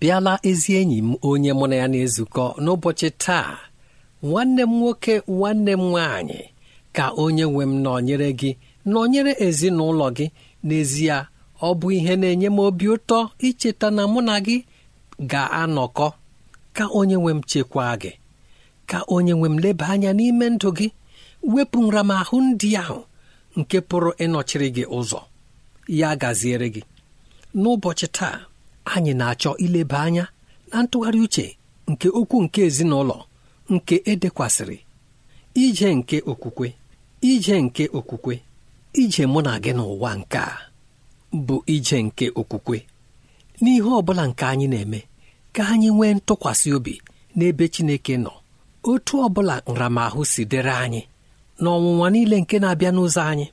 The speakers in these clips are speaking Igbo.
bịala ezi enyi m onye mụ na ya na-ezukọ n'ụbọchị taa nwanne m nwoke nwanne m nwaanyị ka onye nwe m nọnyere gị nọnyere ezinụlọ gị n'ezie ọ bụ ihe na-enye m obi ụtọ icheta na mụ na gị ga-anọkọ ka onye nwe m chekwaa gị ka onye nwe m leba anya n'ime ndụ gị wepụ nramahụ ndị ahụ nke pụrụ ịnọchiri gị ụzọ ya gaziere gị n'ụbọchị taa anyị na-achọ ileba anya na ntụgharị uche nke okwu nke ezinụlọ nke edekwasịrị ije nke okwukwe ije nke okwukwe ije mụ na gị n'ụwa nke a bụ ije nke okwukwe n'ihe ọ bụla nke anyị na-eme ka anyị nwee ntụkwasị obi n'ebe Chineke nọ otu ọ bụla nramahụ si dịrị anyị ọnwụnwa niile nke na-abịa n'ụzọ anyị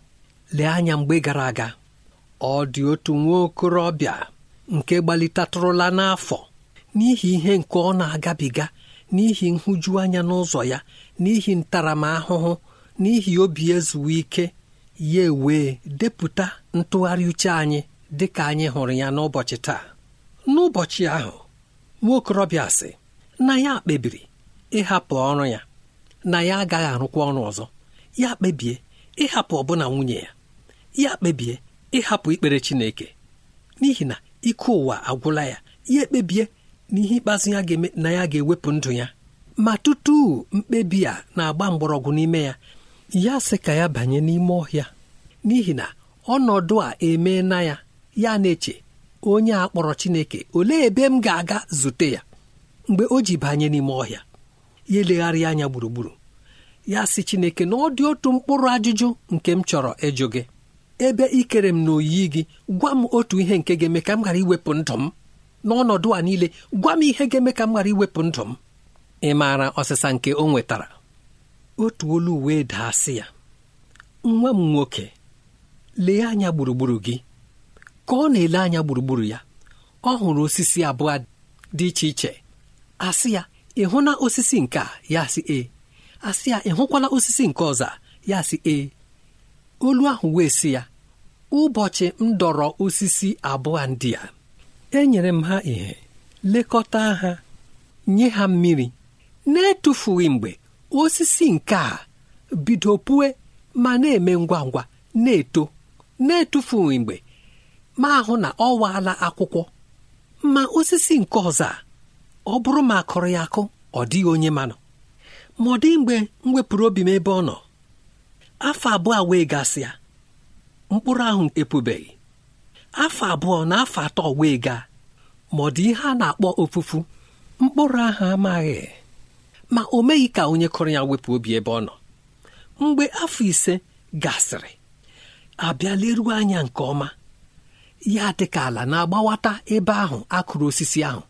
lee anya mgbe gara aga ọ dị otu nwa okorobịa nke gbalitatụrụla n'afọ n'ihi ihe nke ọ na-agabiga n'ihi nhụjuanya n'ụzọ ya n'ihi ntaramahụhụ n'ihi obi ezuwe ike ya ewee depụta ntụgharị uche anyị dị ka anyị hụrụ ya n'ụbọchị taa n'ụbọchị ahụ nwaokorobịa sị na ya kpebiri ịhapụ ọrụ ya na ya agaghị arụkwa ọrụ ọzọ ya kpebie ịhapụ ọbụna nwunye ya ya kpebie ịhapụ ikpere Chineke n'ihi na ike ụwa agwụla ya ya ekpebie na ihe ikpeazụ ya ga na ya ga-ewepụ ndụ ya ma tutu mkpebi a na-agba mgbọrọgwụ n'ime ya ya sị ka ya banye n'ime ọhịa n'ihi na ọnọdụ a emee na ya ya na-eche onye a kpọrọ Chineke olee ebe m ga-aga zute ya mgbe o ji banye n'ime ọhịa ya elegharị anya gburugburu ya sị Chineke na ọ dị otu mkpụrụ ajụjụ nke m chọrọ ịjụ gị ebe ị kere m n'oyi gị gwa m otu ihe nke ga-eme ka m ghara iwepụ ndụ m n'ọnọdụ a niile gwa m ihe ga-eme ka m ghara iwepụ ndụ m ị maara ọsịsa nke o nwetara otu olu wee daa sị ya nwa m nwoke lee anya gburugburu gị ka ọ na-ele anya gburugburu ya ọ hụrụ osisi abụọ dị iche iche asị ya ị hụla osisi nke a ya sị e asị ya ị hụkwala osisi nke ọzọ ya sị e olu ahụ wee si ya ụbọchị m dọrọ osisi abụọ ndị a enyere m ha ihe lekọta ha nye ha mmiri na-etufughị mgbe osisi nke a bido pue ma na-eme ngwa ngwa na-eto na-etufughị mgbe ma ahụ na ọ waala akwụkwọ ma osisi nke ọzọ a ọ bụrụ ma akụrụ ya akụ ọ dịghị onye manọ ma ọ dịghị mgbe m wepụrụ obi m ebe ọ nọ afọ abụọ wee gasịa mkpụrụ ahụ epubeghị afọ abụọ na afọ atọ wee gaa ma ọ dị ihe a na-akpọ ofufu mkpụrụ ahụ amaghị ma o meghị ka onye kụrụ ya wepụ obi ebe ọ nọ mgbe afọ ise gasịrị abịa leruo anya nke ọma ya dịka ala na-agbawata ebe ahụ akụrụ osisi ahụ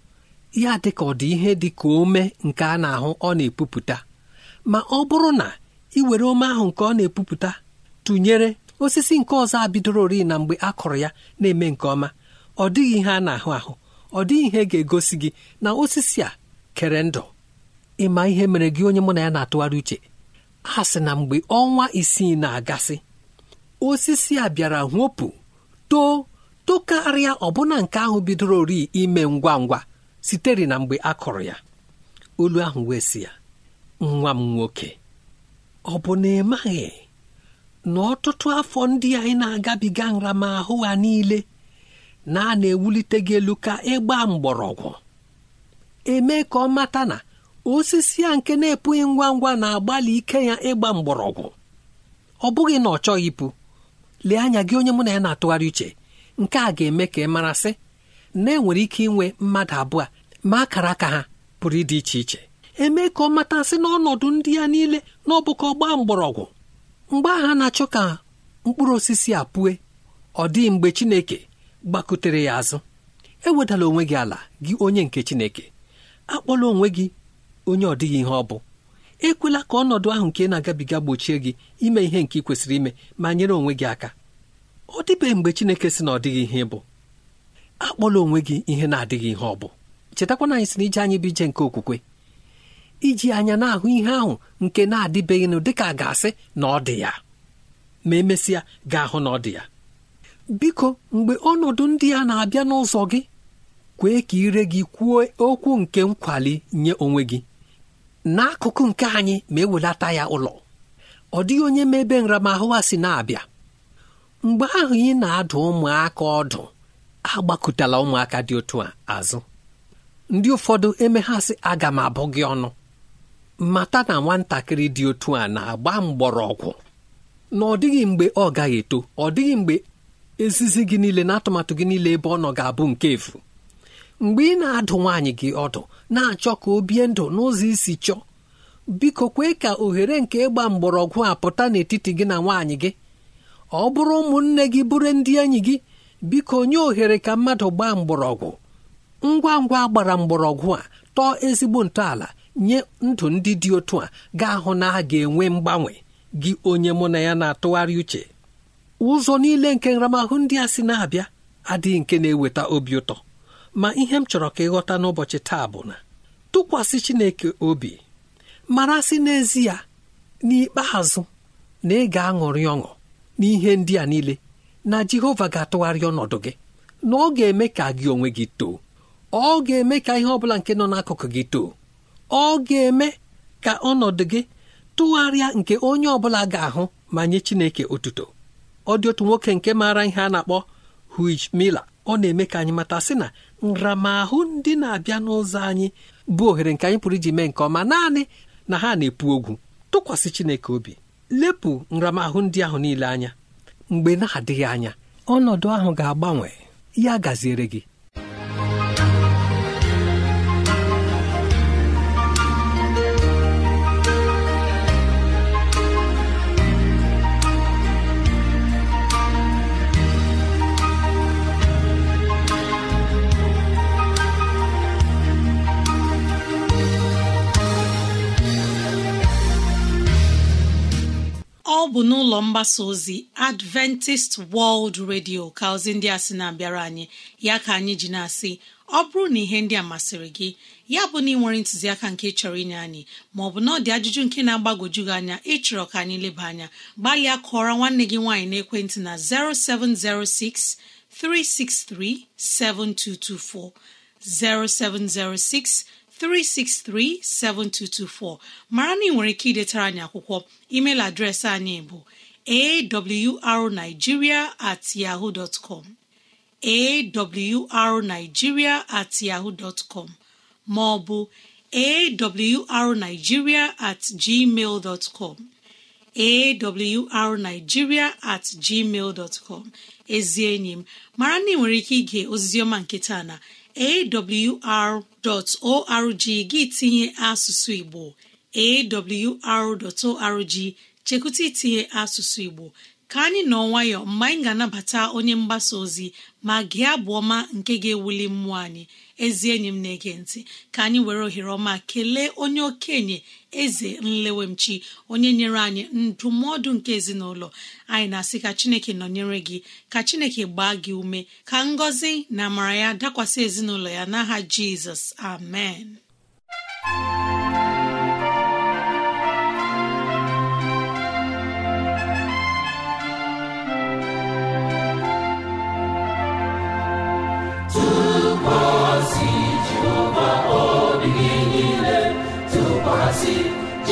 ya dịka ọ dị ihe dị ka ome nke a na-ahụ ọ na-epupụta ma ọ bụrụ na iwere ome ahụ nke ọ na-epupụta tụnyere osisi nke ọzọ ori na mgbe a kụrụ ya na-eme nke ọma ọ dịghị ihe a na-ahụ ahụ ọ dịghị ihe ga-egosi gị na osisi a kere ndụ ịma ihe mere gị onye mụ na ya na-atụgharị uche a sị na mgbe ọnwa isii na-agasị osisi a bịara nwopụ too tokarịa ọbụna nke ahụ bidoro ori ime ngwa ngwa sitere na mgbe a kụrụ ya olu ahụ wee si ya nwa m nwoke ọ bụ na ị maghị na ọtụtụ afọ ndị anyị na-agabiga nramahụ ha niile na a na-ewulite gị elu ka ịgba mgbọrọgwụ eme ka ọ mata na osisi a nke na-epụghị ngwa ngwa na-agbalị ike ya ịgba mgbọrọgwụ ọ bụghị na ọ chọghị ịpụ lee anya gị onye mụ na ya na-atụgharị uche nke a ga-eme ka ị marasị na enwere ike inwe mmadụ abụọ ma akara aka ha pụrụ ịdị iche iche eme ka ọ matasị n'ọnọdụ ndị ya niile na ọgbaa gbaa mgbọrọgwụ mgbe aha na-achọ ka mkpụrụ osisi a pụe ọ dịghị mgbe Chineke gbakutere ya azụ ewedala onwe gị ala gị onye nke Chineke akpọla onwe gị onye ọ dịghị ihe ọ bụ ekwela ka ọnọdụ ahụ nke na-agabiga gbochie gị ime ihe nke ị kwesịrị ime ma nyere onwe gị aka ọ dịbeghị mgbe Chineke sị na ọ dịghị ihe bụ akpọla onwe gị ihe na-adịghị ihe ọ bụ chetakwana anyị na ije anyị bụ ije nke okwukwe iji anya na-ahụ ihe ahụ nke na-adịbeghịnụ dịka ga-asị na ọ dị ya ma emesịa ga-ahụ na ọ dị ya biko mgbe ọnọdụ ndị a na-abịa n'ụzọ gị kwee ka ire gị kwuo okwu nke nkwali nye onwe gị n'akụkụ nke anyị ma ewelata ya ụlọ ọ dịghị onye ma ebe nramahụ a si na-abịa mgbe ahụ ị na-adụ ụmụaka ọdụ agbakụtala ụmụaka dị otu a azụ ndị ụfọdụ emeghasị aga m abụ gị ọnụ mata na nwatakịrị dị otu a na-agba mgbọrọgwụ na ọ dịghị mgbe ọ gaghị eto ọ dịghị mgbe ezizi gị niile na atụmatụ gị niile ebe ọ nọ ga-abụ nke efu mgbe ị na-adụ nwaanyị gị ọdụ na-achọ ka o bie ndụ n'ụzọ isi chọọ biko kwee ka ohere nke ịgba mgbọrọgwụ a pụta n'etiti gị na nwaanyị gị ọ bụrụ ụmụnne gị bụrụ ndị enyi gị biko nye ohere ka mmadụ gbaa mgbọrọgwụ ngwa ngwa gbara mgbọrọgwụ a tọọ ezigbo ntọala nye ndụ ndị dị otu a ga-ahụ na a ga-enwe mgbanwe gị onye mụ na ya na-atụgharị uche ụzọ niile nke nramahụ ndị a si na-abịa adịghị nke na-eweta obi ụtọ ma ihe m chọrọ ka ịghọta n'ụbọchị taa bụ na tụkwasị Chineke obi mara sị n'ezie n'ikpeazụ na ị ga-aṅụrị ọṅụ n'ihe ndị a niile na Jehova ga-atụgharị ọnọdụ gị na ọ ga-eme ka gị onwe gị too ọ ga-eme ka ihe ọ bụla nke nọ n'akụkụ gị too ọ ga-eme ka ọnọdụ gị tụgharịa nke onye ọ bụla ga-ahụ ma nye Chineke otuto ọ dị otu nwoke nke maara ihe a na-akpọ Hugh mila ọ na-eme ka anyị mata sị na nramahụ ndị na-abịa n'ụzọ anyị bụ ohere nke anyị pụrụ iji mee nke ọma naanị na ha na-epu ogwu tụkwasị Chineke obi lepụ nramahụ ndị ahụ niile anya mgbe na-adịghị anya ọnọdụ ahụ ga-agbanwe ya gaziere gị bụ n'ụlọ mgbasa ozi adventist world radio ka ozi ndị a sị na-abịara anyị ya ka anyị ji na-asị ọ bụrụ na ihe ndị a masịrị gị ya bụ na ị nwere ntụziaka nke chọrọ inye anyị maọbụ na ọ dị ajụjụ nke na-agbagoju gị anya ịchọrọ ka anyị leba anya gbalịa kụọrọ nwanne gị nwaanyị n'ekwentị na 0706 363 7224 0706 363-7224 mara na ị nwere ike idetara anyị akwụkwọ emeil adreesị anyị bụ awrnigeria at at com ma ọ bụ awrnigeria at gmail at gmail ezi enyi m mara na ị nwere ike ige oziziọma nke taa na awr.org gị tinye asụsụ Igbo awr.org chekwụta itinye asụsụ Igbo ka anyị nọ nwayọ mgbe anyị ga-anabata onye mgbasa ozi ma gị abụ ọma nke ga-ewuli mmụọ anyị ezi enyi m na-ege ntị ka anyị were ohere ọma kelee onye okenye eze nlewemchi onye nyere anyị ndụmọdụ nke ezinụlọ anyị na-asị ka chineke nọnyere gị ka chineke gbaa gị ume ka ngọzi na amara ya dakwasị ezinụlọ ya n'aha jizọs amen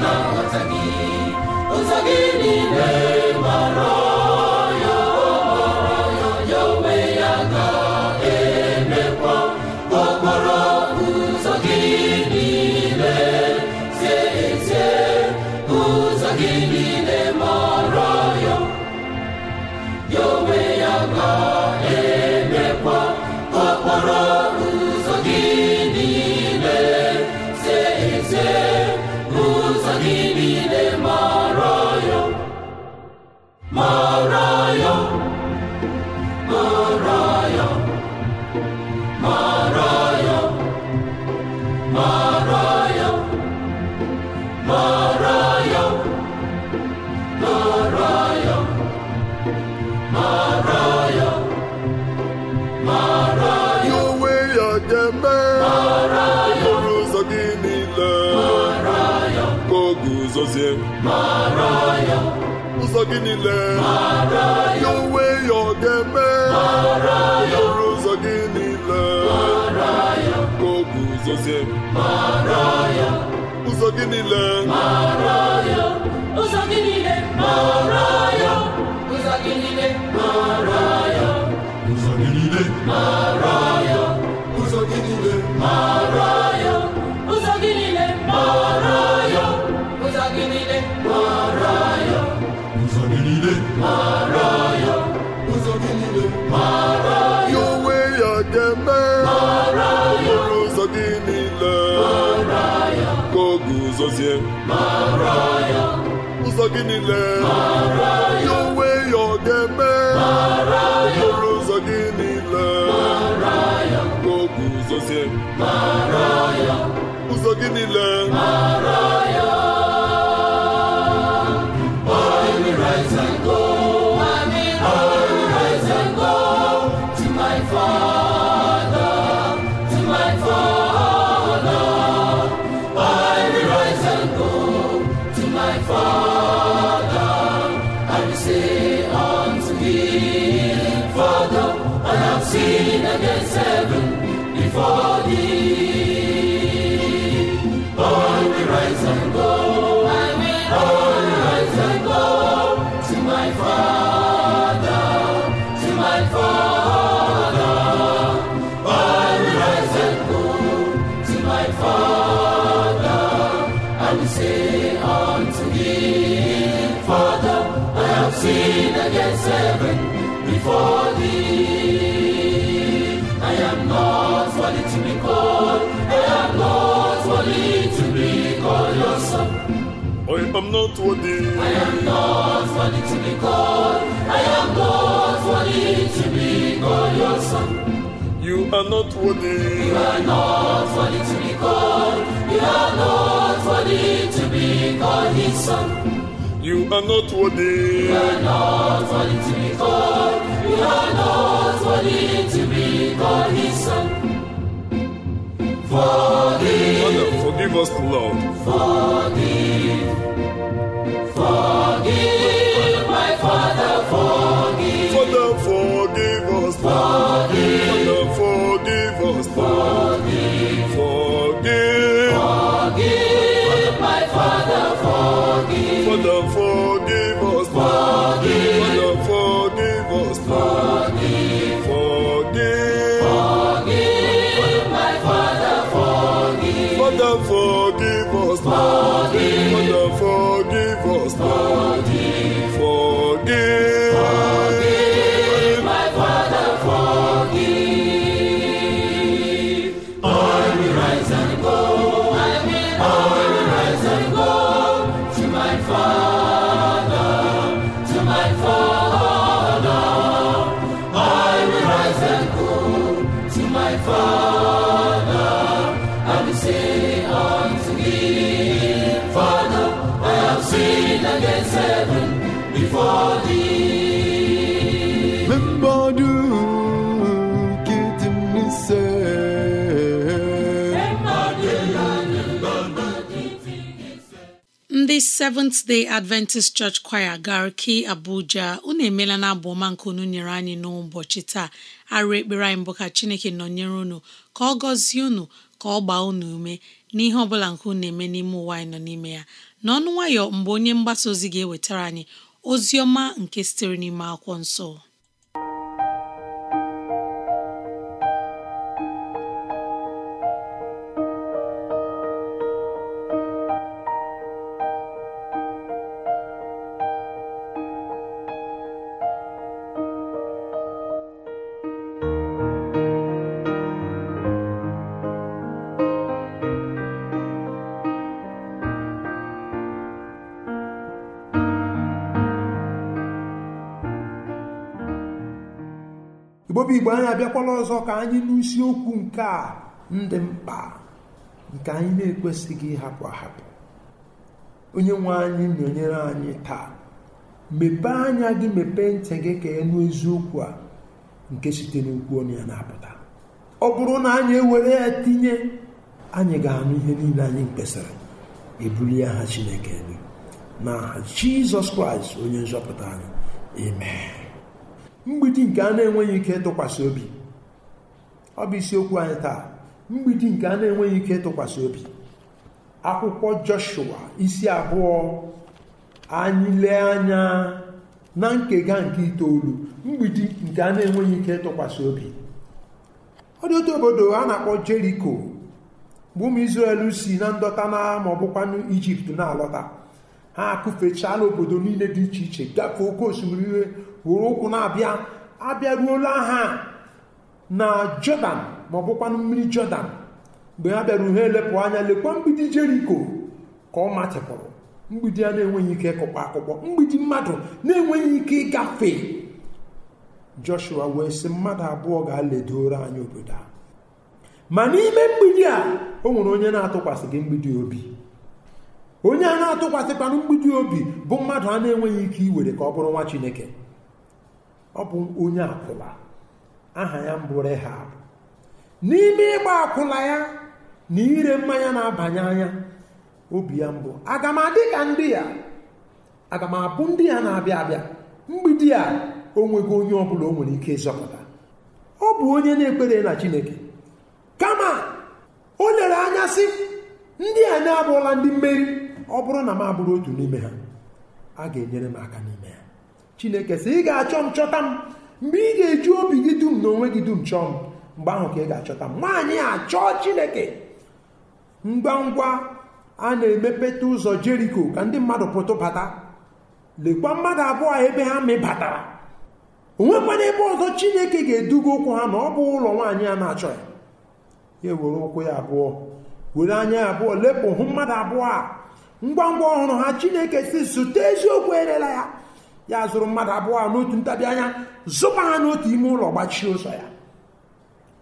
na nghọta gị ụzọ gị niile mara ya mara ya ya onwe ya ga-emekwa ụzọ gị niile ya onwe ya ọ ga-eme okporo ụzọ gị niile ka o ụzọ gị niile ụzọ gị niile ụzọ ụzọ gị gọzie ụzọ gị niile ya onwe ya ọ ga-eme okporo ụzọ gị niile ka guzozie ụzọ gị niile Am not worthy. I am not worthy to be called. I am not worthy to be called your son. You are not worthy. You are not worthy to be called. You are not worthy to be called his son. You are not worthy. You are not worthy to be called. You are not worthy to be called his son. Forgive. forgive us, Lord. Forgive. Forgive, my Father, forgive. Father, forgive us. Forgive. Father, forgive us. Forgive. Lord. Seventh Day Adventist Church Choir Garki Abuja unu emeela na abụ ọma nke unu nyere anyị n'ụbọchị taa arụ ekpere anyị mbụ ka Chineke nọnyere unu ka ọ gọzie unu ka ọ gbaa unu ume n'ihe ọ nke unu eme n'ime ụwa anyị nọ n'ime ya n'ọnụ nwayọ mgbe onye mgbasa ozi ga-ewetara anyị ozi ọma nke sitere n'ime akwụkwọ nsọ igbo anyị abịakwala ọzọ ka anyị n'isiokwu nke a ndị mkpa nke anyị na-ekwesịghị ịhapụ ahapụ onye nwe anyị nọnyere anyị taa mepee anya gị mepee ntị gị ka ịnụ eziokwu a nke site n'okwu onye ya na-apụta ọ bụrụ na anyị ewere ya tinye anyị ga-anụ ihe niile anyị mkpesara e ya aha Chineke elu n'aha Jizọs Kraịst onye nzọpụta anyị amen mgbidi nke a na-enweghị ike ịtụkwasị obi ọ bụ isiokwu anyị taa mgbidi nke a na-enweghị ike ịtụkwasị obi akwụkwọ Joshua isi abụọ anyị lee anya na nkega nke itoolu mgbidi nke a na-enweghị ike ịtụkwasị obi ọ dị otu obodo a na-akpọ Jeriko bụ ụmụ si na ndọta na ma ọ Ijipt na-alọta ha akụfechala obodo niile dị iche iche gafee oke osimiri iwe were ụkwụ na-abịa abịaruola ha na jọdan ma ọ bụkwanụ mmiri jọdan mgbe ha bịara ha elepụ anya lekwa mgbidi jeriko ka ọ matịpụrụ mgbidi a na-enweghị ike kụkpọ akụkpọ mgbidi mmadụ na-enweghị ike ịgafe joshua wee sị mmadụ abụọ ga-aledoro anyị obodo a ma n'ime mgbidi a o nwere onye na-atụkwasị gị mgbidi obi onye a na-atụkwasịkwanụ mgbidi obi bụ mmadụ a na-enweghị ike iwere ka ọ bụrụ nwa chineke ọ bụ onye akwụla aha ya mbụ ha n'ime ịgba akwụla ya na ire mmanya na-abanye anya obi ya mbụ aga m adị ka ndị ya aga m ndị ya na-abịa abịa mgbidi a o nweghị onye ọ bụla o nwere ike ịzọpụta ọ bụ onye na-ekpere na chineke kama o lere anya sị ndị a na abụla ndị mmeri ọ bụrụ na m abụrụ otu n'ime ha a ga-enyere m aka n'ime ha chineke sị ị ga-achọ m chọta m mgbe ị ga-eji obi gị dum na onwe gị dum chọọ m mgbe ahụ ka ị ga-achọta m nwaanyị a chọọ chineke ngwa ngwa a na-emepeta ụzọ jeriko ka ndị mmadụ pụtụ bata lekwa mmadụ abụọ ebe ha mịbatara onwekwana ebe ọzọ chineke ga-eduga ụkwụ ha na ọ bụ ụlọ nwaanyị a na-achọ ya ya ewere ụkwụ ya abụọ were anya ya abụọ lepụ hụ mmadụ abụọ a ngwa ngwa ọhụrụ ha chineke si zụta eziokwu erela ya ya zụrụ mmadụ abụọ a n'otu ntabi anya zụba ha n'otu ime ụlọ gbachie ụzọ ya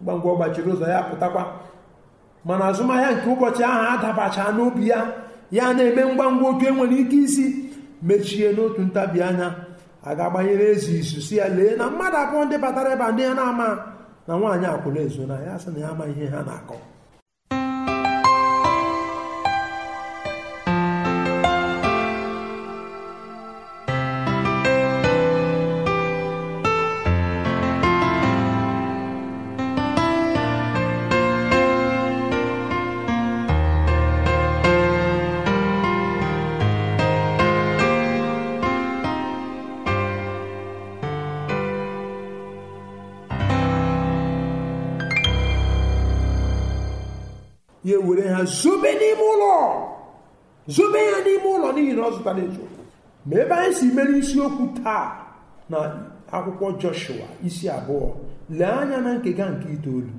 ngwa ngwa gbachiri ụzọ ya pụtakwa mana azụmahịa nke ụbọchị ahụ adabacha n'obi ya ya na-eme ngwa ngwa oke nwere ike isi mechie n'otu ntabi anya a ga-agbanyere ezi izu si ya lee na mmadụ abụọ ndị batara ebe ndị ya na-ama na nwaanyị akwụna ezo na ya sị na ya ama ihe ha na-akọ were ha zobe n'ime ụlọ zobe ya n'ime ụlọ n'ihi na ọ zụtara eziokwu ma ebe anyị si mere isiokwu taa na akwụkwọ joshua isi abụọ lee anya na nkega nke itoolu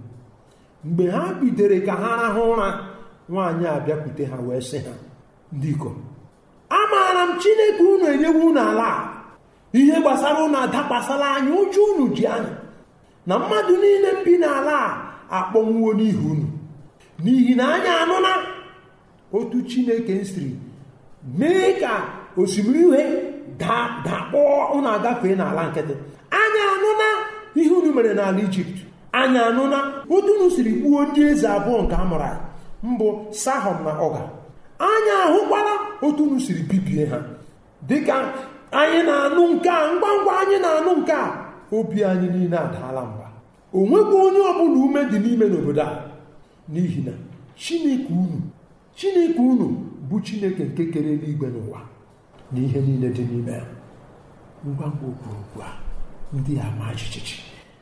mgbe ha bidere ka ha rahụ ụra nwaanyị a bịakwute ha wee sị ha ndị ikom amaara m chineke unu enyewe unu ala ihe gbasara unu adakwasala anya ụjọ unu ji anya na mmadụ niile bi n'ala a akpọnwuo n'ihi unu n'ihi na anya anụna otu chineke siri mee ka osimiri uhie dakpọọ ụnụ agafee n'ala nkịtị anya anụna ihe unu mere n'ala ijipt anya anụna otu unu siri ndị eze abụọ nke amụrụ mbụ sahọm na ọga anya ahụkwala otu n'usiri bibie ha dịka anyị na-anụ nke a ngwa ngwa anyị na-anụ nke a obi anyị niile adaala mba o onye ọbụla ume dị n'ime n'obodo a n'ihi na chineke unu chineke unu bụ chineke nke kere eluigwe n'ụwa na ihe niile dị n'ime ya ngwa ngwa okpurukwu a ndị a ma jijiji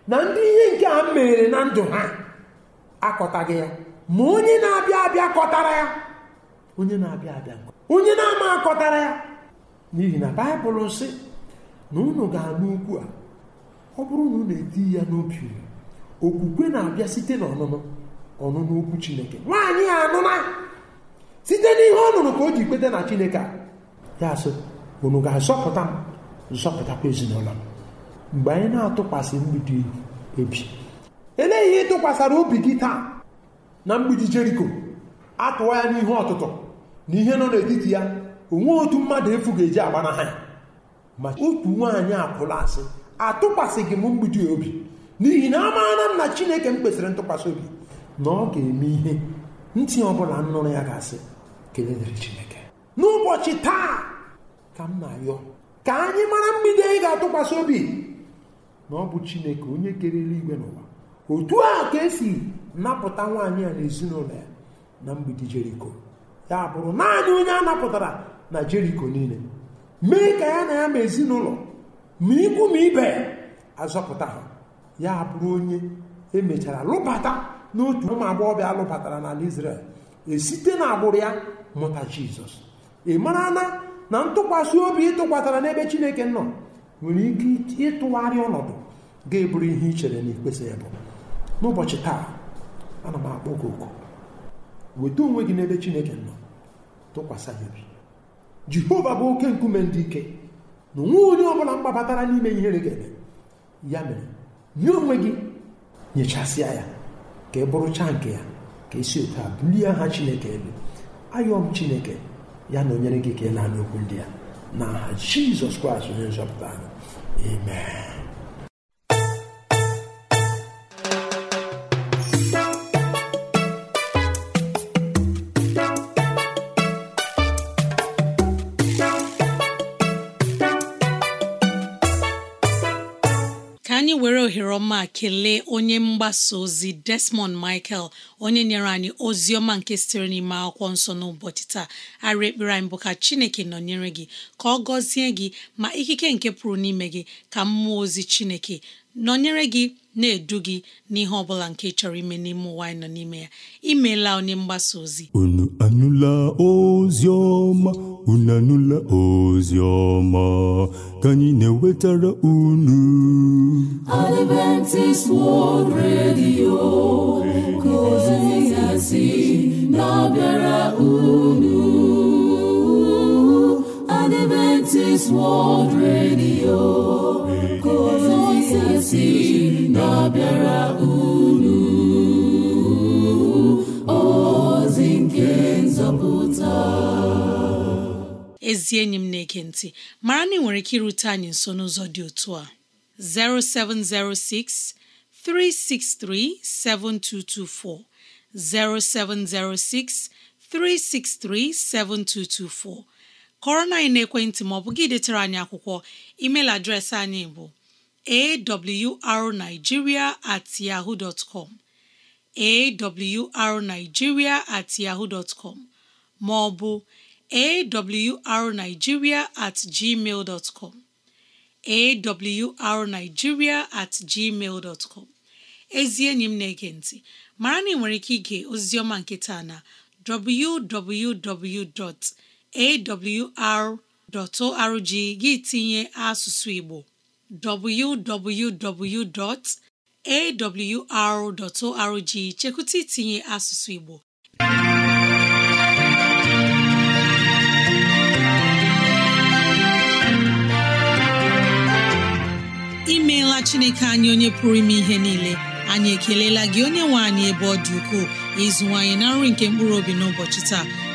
na ndị ihe nke a mere na ndụ ha akọtaghị ya ma onye na-abịa abịa kọtara ya onye na-abịa abịa onye na-ama akọtara ya n'ihi na baịbụl sị na unu ga-anụ ukwu a ọ bụrụ na unu eti ya n'obi okwukwe na-abịa site n'ọnụnụ ọnụnụ chineke nwaanyị a anụna site n'ihe ọ nụrụ ka o ji kweta na chineke a ya sị unu ga-azọpụta m zọpụtakwa ezinụlọ m mgbe anyị na-atụkwasị mgbidi ebi Eleghị ihe ị tụkwasara obi gị taa na mgbidi jeriko atụwa ya n'ihe ọtụtụ na ihe nọ n'etiti ya onwe otu mmadụ efu ga-eji na ya ma otu nwaanyị akwụla asị atụkwasịghị m mgbidi obi n'ihi na amaara m na chineke m kwesịrị ntụkwasị obi na ọ ga-eme ihe ntị ọbụla nnụrụ ya ga-asị Chineke n'ụbọchị taa ka m na-ayọ ka anyị mara mgbidi anyị ga-atụkwasị obi na ọ bụ Chineke onye kere eluigwe n'ụwa otu a ka esi napụta nwaanyị a na ezinụlọ ya na mgbidi Jeriko ya bụrụ naanị onye a napụtara na Jeriko niile mee ka ya na ya ma ezinụlọ ma ikwu ma ibe azọpụta ha ya bụrụ onye emechara lụbata n'otu ụmụ bịa lụbatara n'ala Izrel esite na agbụrụ ya mụta Jizọs ị mara na na ntụkwasị obi ịtụkwatara n'ebe Chineke nọ nwere ike ịtụgharị ọnọdụ ga-eburu ihe i chere na ikpesa ya bụ n'ụbọchị taa ana m akpọ gị oku weta onwe gị n'ebe Chineke nọ tụkwasị ya obi Jehova bụ oke nkume ndị ike na onwe onye ọbụla mgbabatara n'ime ihere ga-eme ya mere nye onwe gị nyechasịa ya ka ị bụrụchaa nke ya ka esi otu a bulie aha chineke elu ayọm chineke ya na onyere gị ka ị na-anụ okwu ndị ya n'aha jizọs kraịst onye nzọpụta anyị amen ma kelee onye mgbasa ozi Desmond Michael onye nyere anyị ozi ọma nke sitere n'ime akwụkwọ nsọ n'ụbọchị taa arị ekpere anyị bụ ka Chineke nọnyere gị ka ọ gọzie gị ma ikike nke pụrụ n'ime gị ka mmụọ ozi Chineke nọnyere gị na-edu gị n'ihe ọ bụla nke chọrọ ime n'ime ụwa anyị nọ n'ime ya imeela onye mgbasa ozi unu anụla ozi ọma unu anụla ozi ọma ka anyị na-ewetara unu Adventist World Radio unu Adventist World Radio si na-abịara unu ozi nke nzọpụta ezi enyi m na-ege ntị mara na ị nwere ike irute anyị nso n'ụzọ dị otu a 0706 363 7224 0706 363 7224 kọrọ na anyị n'ekwentị ma ọ bụ gị detara anyị akwụkwọ email adreesị anyị bụ awrnigeria at yahoo dot com at yahoo dot com ma ọ at gmail dot com at gmail dot ezi enyi m na-ege ntị mara na ị nwere ike ige oziọma nke taa na www.awr.org gị tinye asụsụ Igbo www.awr.org chekwụta itinye asụsụ Igbo imeela Chineke anyị onye pụrụ ime ihe niile anyị ekelela gị onye nwe anyị ebe ọ dị ukwuu ịzụwanyị na nri nke mkpụrụ obi n'ụbọchị taa